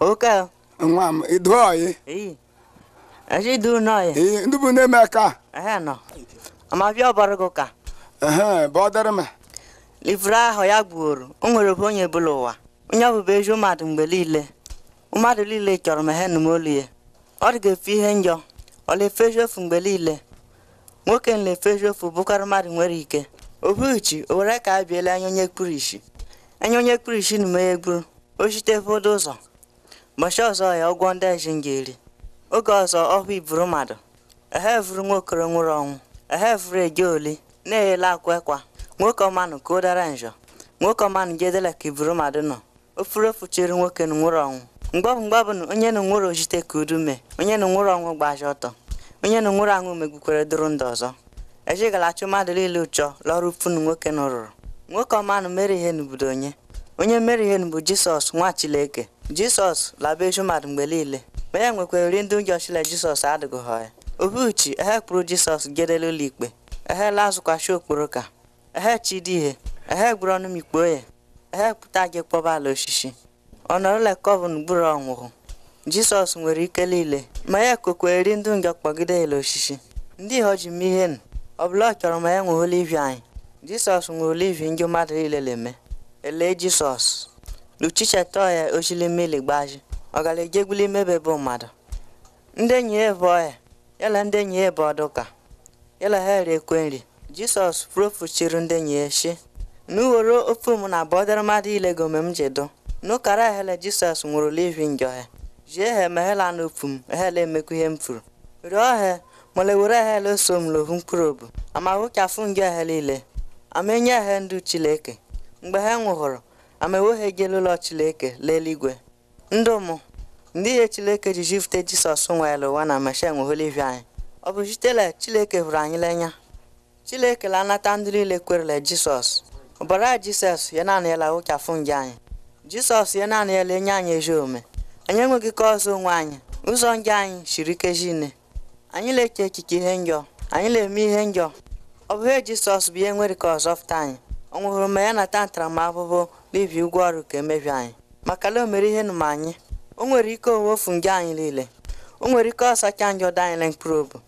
oke nwa m iduoyi eji idu ndị bụ na-eme aka amabịa ọbara gị ụka bụ m livre ahụ ya gbuoro o nwere bụ onye bụla ụwa onye ọbụbụ ezi mmadụ mgbe niile mmadụ niile chọrọ m he nụmolu ya ọ dị ga-efe ihe njọ ọ na mgbe niile nwoke na-efezi ofu mmadụ nwere ike obuchi o were ka a biela anya onye kpuru isi anya onye kpuru isi na m ya egburu o chite ụfọdụ ụzọ mbọchị ọzọ ya ụgwọ ndị eji ga-eri oge ọzọ ọhụ iburu mmadụ ehe vuru nwokoro nwụrụ ọnwụ ehe vuru eje oli na-eyela akwa ekwa nwoke ọmanụ ka o dara njọ nwoke ọmanụ jedela ka iburu mmadụ nọ ofuru ofu chiri nwoke na nwụrụ ọnwụ mgbabụ mgbabụ na onye na nwụrụ ojite ka udu mee onye na nwụrụ ọnwụ gbaji ọtọ onye na nwụrụ anwụ megbukwere dụrụ ndụ ọzọ ejigala chụ mmadụ niile ụchọ lọrụ funu nwoke na rụrụ nwoke ọmanụ mere ihe n'obodo onye onye mere ihe bụ jisọs nwa chileke jisọs eju mmadụ mgbe niile ma ya e nwekwara uri ndị ụjọchile jisọs Obi uchi, ehe kpụrụ jisọs gedela ụlọ ikpe ehe lazụkwachi okporo ka ehe ihe. ehe gburu ọnụ ikpe ya ehe kpụta gị kpọba ala osisi ọnọrụla kọvin gburu ọnwụhụ jisọs nwere ike niile ma ya kokweri ndị njọ kpọgide ele osisi ndị ihe ọjị mee ihe ọbụla ọ chọrọ ma ya nwe olivi anyị jisọs nwere olivi ndị mmadụ niile na-eme ele jisọs luchichetoya oshilimiligbaju bụ mmadụ ndị enyi ya bụ ọya yala ndị enyi ya ọdụka yala ha ekwe nri jisọs profuchiri ndị enyi ya shi n'uworo ofe m na bọdara mmadụ ilegome m jedo n'ụkara ehele jisọs nwụrụ livin gị ha jie ha na n'ofu m ehele emekwa ihe m furu rịọ ha mole were ehele so m lohu mkpụrụ obu amaghụ ka afụ njọ niile ama enye ha ndụ chileke mgbe ha nwụhụrụ amewohe gelụlọ chileke Ndụ ndụmụ ndị ihe chileke ji jifute jisọs nwere ụwa na meshen oholivia anyị ọ bụ sitela chileke hụrụ anyị lenya chileke la anata ndị niile kwerele jisọs ọbara jisọs ya naanị yala ụchafụ nje anyị jisọs ya naanị yala enye anyị ezi ome anyị enweghị ka ọzọ onwe anyị ụzọ nje anyị siri ike nne. anyị na-eche echiche ihe njọ anyị na-eme ihe njọ ọ bụ ihe jisọs bụ ihe nwere ka ọzọ fụta anyị ọ nwụhụrụ ma ya nata ntaramahụhụ n'ibi ụgwọ ọrụ ka emebi anyị maka na o mere ihe nụma anyị o nwere ike ofu nje anyị niile o nwere ike ọsacha anyị ọdọ anyị mkpụrụ obi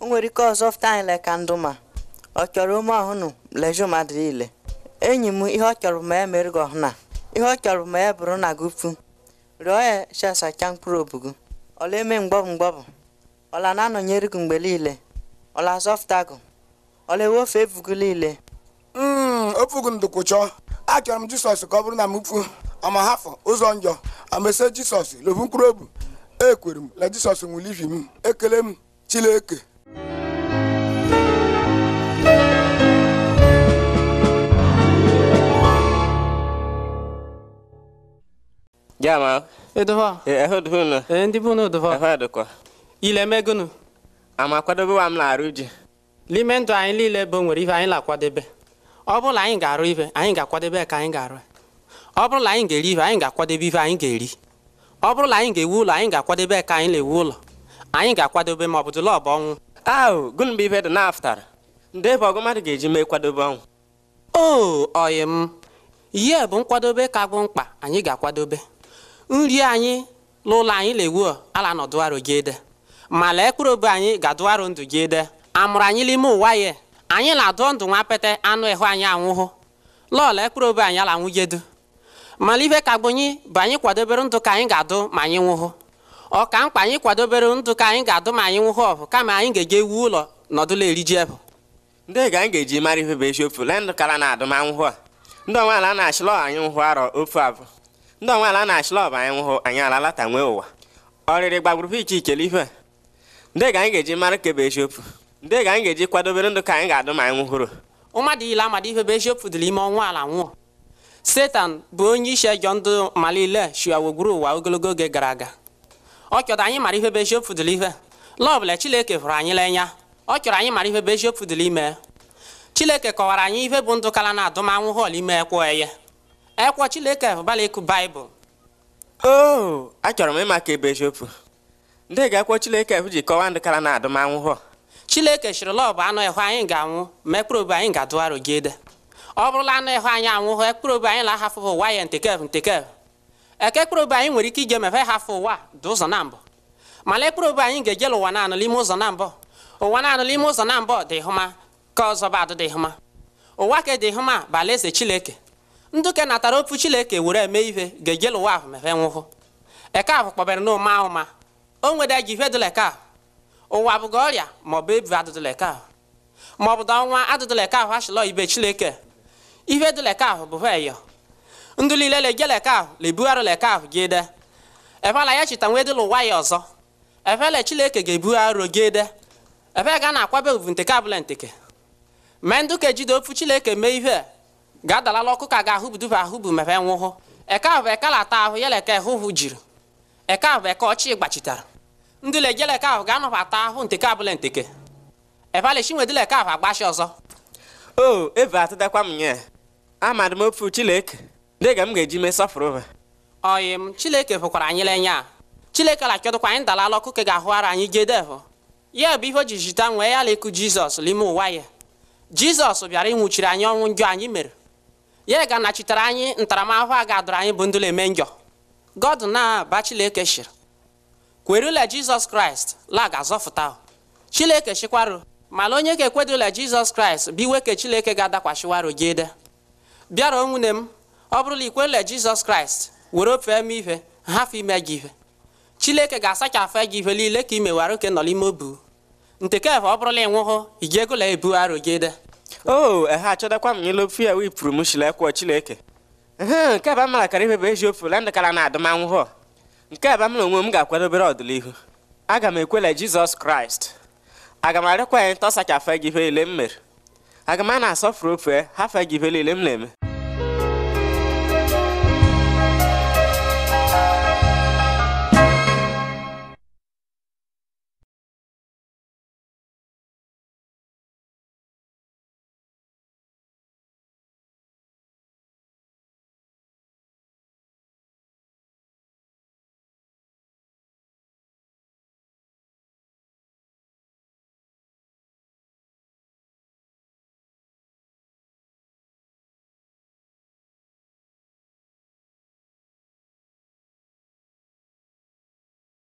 o nwere ike ọzọ fụta anyị le ka ndụ ma ọ chọrọ ume ọhụnụ leju mmadụ niile enyi m ihe ọ chọrọ ma ya mere gị ọhụna ihe ọ chọrọ ma ya bụrụ na gupu pụ rịọ ya chesacha mkpụrụ obi gị ọla eme mgbọbụ mgbọbụ ọla na-anọnyere gị mgbe niile ọla azọfụta gị ọla ewofe ebu gị niile ofugu ndụkwu chọọ achọrọ m jisọs ka ọ bụrụ na m fu ọma hafụ ụzọ njọ amese jisọs lobu mkpụrụ obi ekwere m na jisọs nwụrụ ivi m ekele m chileke Jama. Edova. Eh, e, ehudhunu. E, Ile Ama m na-arụ ji. N'ime ndụ anyị niile bụ nwere ihe anyị na-akwadebe. ọ bụrụ na anyị ga-arụ ife anyị ga-akwadebe ka anyị ga-arụ ọ bụrụ na anyị ga-eri ife anyị ga-akwadebe ife anyị ga-eri ọ bụrụ na anyị ga-ewu ụlọ anyị ga-akwadebe ka anyị na-ewu ụlọ anyị ga-akwadebe ma ọ bụ dịla ọbụ ọnwụ ahụ gụnụ mgbe ife dị naftara ndị ebe ọgụ mmadụ ga-eji mee kwadobe ọnwụ o oyi m ihe bụ nkwadobe ka bụ mkpa anyị ga-akwadobe nri anyị n'ụlọ anyị na-ewu ala nọ dụarụ gị ede ma lee mkpụrụ obe anyị ga-adụarụ ndụ gị ede amụrụ anyị n'ime ụwa ya anyị na-adụ ndụ nwa anụ ịhụ anyị anwụhụ lọọlọ ekpụrụ obe anyị ala nwujedu mana ife ka gbonyi bụ anyị kwadobere ndụ ka anyị ga-adụ ma anyị nwụhụ ọ ka mkpa anyị kwadobere ndụ ka anyị ga-adụ ma anyị nwụhụ ọbụ kama anyị ga-eje wuo ụlọ nọdụla eriji ebụ ndị ga anyị ga-eji mara ife bụ eziokwu lee ndụ kara na adụm anwụhụ a ndị onwe ala na-achịlọ anyị nwụhụ arọ ofu abụ ndị onwe ala na-achịlọ ọbụ anyị nwụhụ anyị ala lata nwee ụwa ọrịrị gbagburu iche ichele ife ndị ga anyị ga-eji mara ka bụ eziokwu ndị ga anyị ga-eji kwadobere ndụ ka anyị ga-adụ ma anyị nwụhụrụ mmadụ ile amadi ihe bụ eziokwu dịrị ime ọnwa ala nwụọ setan bụ onye isi ejọ ndụ malile shiawogburu ụwa ogologo oge gara aga ọ chọrọ anyị mara ihe bụ eziokwu dịrị ihe la hụrụ anyị n'anya ọ chọrọ anyị mara ihe bụ eziokwu dịrị ime Chineke kọwara anyị ihe bụ ndụ kala na adụm anwụhụ ime ekwo eye ekwo chileke hụbala ịkụ baịbụl o oh, achọrọ m ịma ka ebe eziokwu ndị ga ji kọwaa ndụ kala na adụmanwụ anwụhụ chineke chịrị lọ bụ anụ ịhụ anyị ga-anwụ ma ekpere anyị ga-adụgharụ gị ede ọ bụrụla anụ ịhụ anyị anwụhụ ekpere obi anyị lahafụ ụwa ya ntekev ntekev eke ekpere anyị nwere ike ije mefe hafụ ụwa dị ụzọ na mbụ mana ekpere anyị ga-ejela ụwa naanụ n'ime ụzọ na mbụ ụwa naanụ n'ime ụzọ na mbụ dị hụma ka ọzọ ba adịdị hụma ụwa ka dị hụma bụ eze chineke nduke natara opu chineke were eme ihe ga-ejela ụwa ahụ mefe nwụhụ eke ahụ kpọbere n'ụma ahụ o ji ihe dịla eke ahụ ụwa bụga ọrịa maọbụ ebi adụdụleka ahụ maọbụ da ọnwa adụdụleka ahụ achịlọ ibe chileke ihe dụleka ahụ bụ eyo ndụ niile legie ahụ lebugharị leka ahụ gị de efela ya chita nwe dịla ụwa ya ọzọ efele chileke ga-ebugharị gị de efe ga na-akwabe ovu nteke abụla nteke mee ndụ ka ejide ofu chileke mee ihe ga-adalala ọkụ ka ga-ahụbuduba ahụbu mepe nwụhụ eke ahụ bụ ekala ata ahụ ya leke hụhụ jiri eke ahụ bụ eke ọchị gbachitara ndị lejeleke ahụ ga-anọbata ahụ nteke abụla nteke ebale chinwedeleke ahụ agbachi ọzọ o eve atụdakwa m nye amadị m ofu chileke dịga m ga-eji mee sọfụrụ ha oyi m chileke fụkwara anyị lenye a chileke lakịọdụkwa anyị dalala ọkụ ka ga ara anyị gedevụ ya bụ ihe o ji jita nwee ya lekụ jizọs n'ime ụwa ya jizọs bịara ịnwụchiri anyị ọnwụ njọ anyị mere ya ga-anachitere anyị ntaramahụhụ a ga adụrụ anyị bụ ndụla eme njọ god na-aba chileke shiri kwerula jizọs kraịst la ga-azọfụta chineke chịkwarụ mala onye ga-ekwedola jizọs kraịst iwe ke chineke ga adakwachiwaru gị ede bịara nwunye m ọ bụrụla ikwerula jizọs kraịst were ofe m ihe hafụ ime gị ihe chineke ga-asachafụ gị ihe niile ka i mewara oke nọ n'ime obu ntekeva ọ bụrụla ịnwụhụ ị ga-egola ebu arụ gị ede o oh, ehe achọdakwa m n'elu ya wipụrụ m shilekwa chineke ehe nke bụ amara kara ife bụ eji ofe landakara na adụmanwụhụ nke a bụ m na onwe m ga-akwadobere ọdịnihu aga m ekwele jizọs kraịst aga m arịkwa ya ntọsacha afe gị ihe m mere aga m a na-asọfuru ofe hafe gị ihe niile m na-eme